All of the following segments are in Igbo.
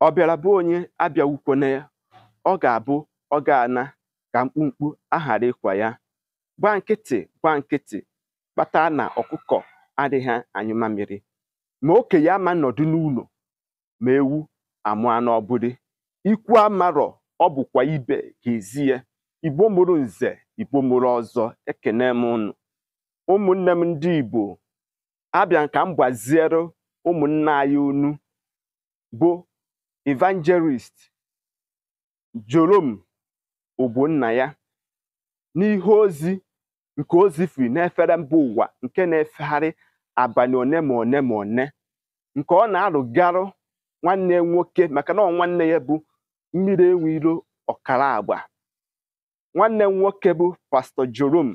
ọ bịara bụ onye abịawukwana ya ọ ga-abụ ọ ga-ana ka mkpumkpu aghara ịkwa ya gba nkịtị gba nkịtị kpata na ọkụkọ adịghị anyụ mamịrị ma okenye ama nọdụ n'ụlọ ma ewu amụa n'ọbụdị ikwu amarọ ọ bụkwa ibe ga-ezi ya igbo mụrụ nze igbo mụrụ ọzọ ekene m ụnụ ụmụnne m ndị igbo abịa ka m gbaziere ụmụnna anyị onu bụ Evangelist Jerome ya n'ihe ozi nke ozi na n'efere mba ụwa nke na-efegharị abalị one ma one ma one nke ọ na arụgarụ nwanne nwoke maka na ọ nwanne ya bụ mmiri enwe ọkara agba nwanne nwoke bụ pastọ Jerome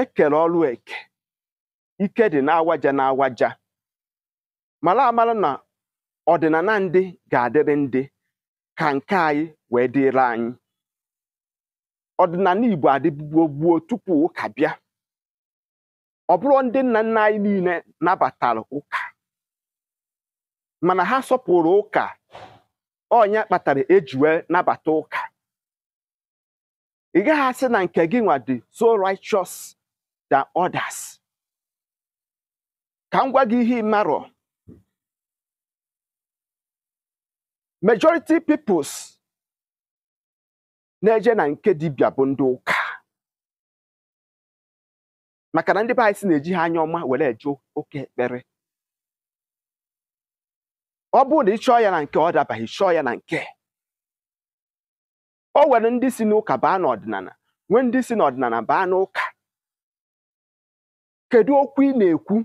ekere ọrụ eke ike dị n'awaja n'awaja mara amara na ọdịnana ndị ga-adịrị ndị ka nke anyị wee dịrị anyị ọdịnala Igbo adịbugbo gbuo tupu ụka bịa ọ bụrụ ndị nna nna anyị niile nabatara ụka mana ha sọpụrụ ụka ọnya kpatara eji nabata ụka ị gaghị na nke gị nwa dị so righteous than others ka m gwa gị ihe ị majority peoples na-eje na nke dibia bụ ndị ụka maka na ndị be na-eji ha anya ọma were eje oke ekpere ọ bụrụ na ị ya na nke ọ dabaghị chọọ ya na nke o nwere ndị si n'ụka baa n'ọdịnala nwee ndị si n'ọdịnala baa n'ụka kedu okwu ị na-ekwu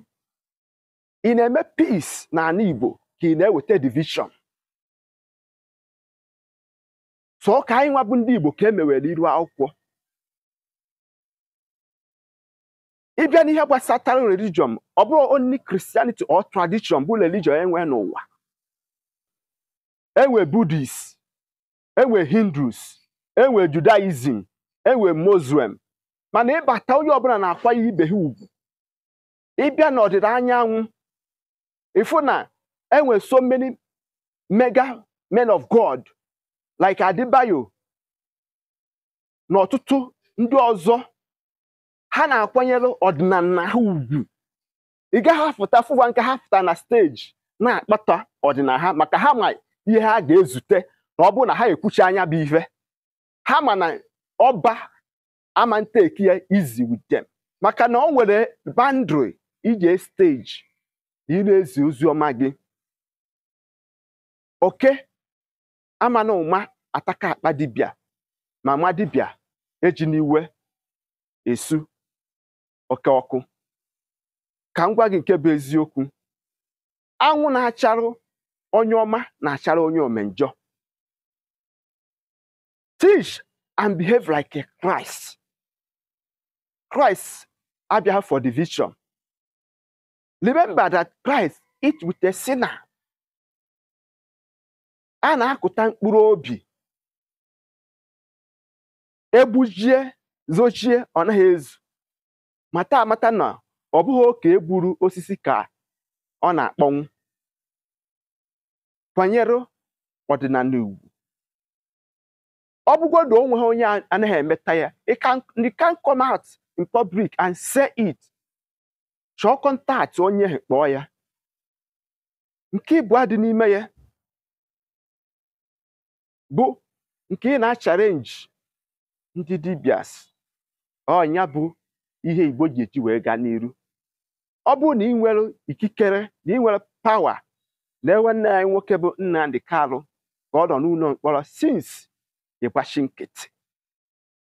ị na-eme peace na ala Igbo ka ị na-eweta division ọ ka anyị nwa bụ ndị Igbo ka e iru akwụkwọ ịbịa n'ihe gbasatara religion ọ bụrụ onli Christianity or tradition bụ religion enwe n'ụwa enwe Budist, enwe Hindus enwe Judaism enwe Muslim mana ịbata onye ọbụla na-akwanye ibe ha ugwu ịbịa n'ọdịda anyanwụ ịfụ na enwe so many mega men God like adibayo na ọtụtụ ndị ọzọ ha na-akwanyere ọdịnala ha ugwu ị gaghị afụta fụwa nke ha fụta na steji na-akpata ọdịnala ha maka ha ma ihe ha ga-ezute na ọ bụrụ na ha ekwuchi anya bụ ihe ha ma na ọba ama ya izi with maka na ọ nwere bandri ije steji ị na-ezi ozi ọma gị oke ama na ụma ataka akpa dibịa ma ma dibịa eji n'iwe esu oke ọkụ ka m gwa gị nke bụ eziokwu anwụ na-acharụ onye ọma na-achara onye omenjọ teach and behave like a Christ Christ abịa for division remember that Christ eat with a sinner a na-akụta mkpụrụ obi egbujie zochie ọ naghị ezu mata amata na ọ bụghị oke egburu osisi ka ọ na-akpọnwụ kwànyere ọdịnala ọ bụgodu o nweghị onye anaghị emeta ya it can come out in public and say it chọọ kọntaktị onye kpọọ ya nke ịbụa dị n'ime ya bụ nke ị na-acharenji ndị dibias ọnya bụ ihe igbo ji eji wee gaa n'iru ọ bụrụ na ị nwere ikikere na ị nwere pawa na ewe nne anyị nwoke bụ nna ndị Kalụ ka ọ nọ n'ụlọ mkpọrọ sins ịgbachi nkịtị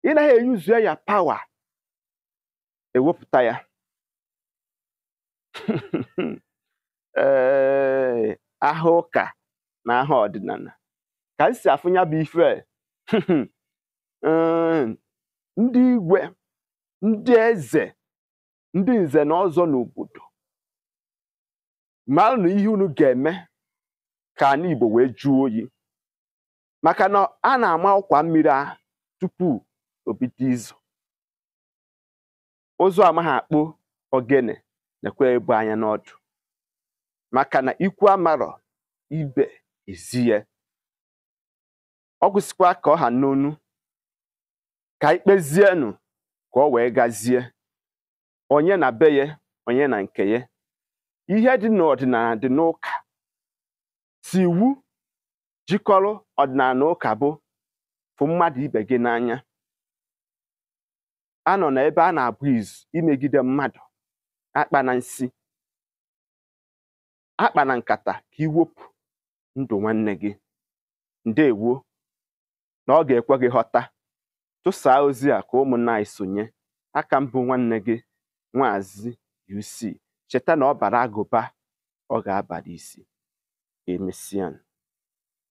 ị naghị eyuzu ya pawa ewepụta ya ee aha ụka na aha ọdịnala ka m si afụ bụ ife e. ehm, ndị igwe ndị eze ndị nze na ọzọ n'obodo na ihe unu ga-eme ka anyị Igbo wee juo oyi maka na a na-ama ọkwa mmiri a tupu obido izu ụzọ amaghị akpụ ogene nekwe ebu anya n'ọdụ maka na ikwu amarọ ibe ezie ọ gwụsịkwa ka ọ ha n'onu ka ikpezienụ ka ọ wee gazie onye na be ya onye na nke ya ihe dị n'ọdịnala dị n'ụka si iwu jikọrọ ọdịnala na ụka bụ fụ mmadụ ibe gị n'anya a nọ n'ebe a na-abụ izu imegide mmadụ akpa na nsi akpa na nkata ka iwepụ ndụ nwanne gị ndewo na ọ ga-ekwe gị ghọta tụsaa ozi a ka ụmụnna anyị sonye aka mbụ nwanne gị nwazi UC cheta na ọ bara agụba ọ ga-abara isi emesian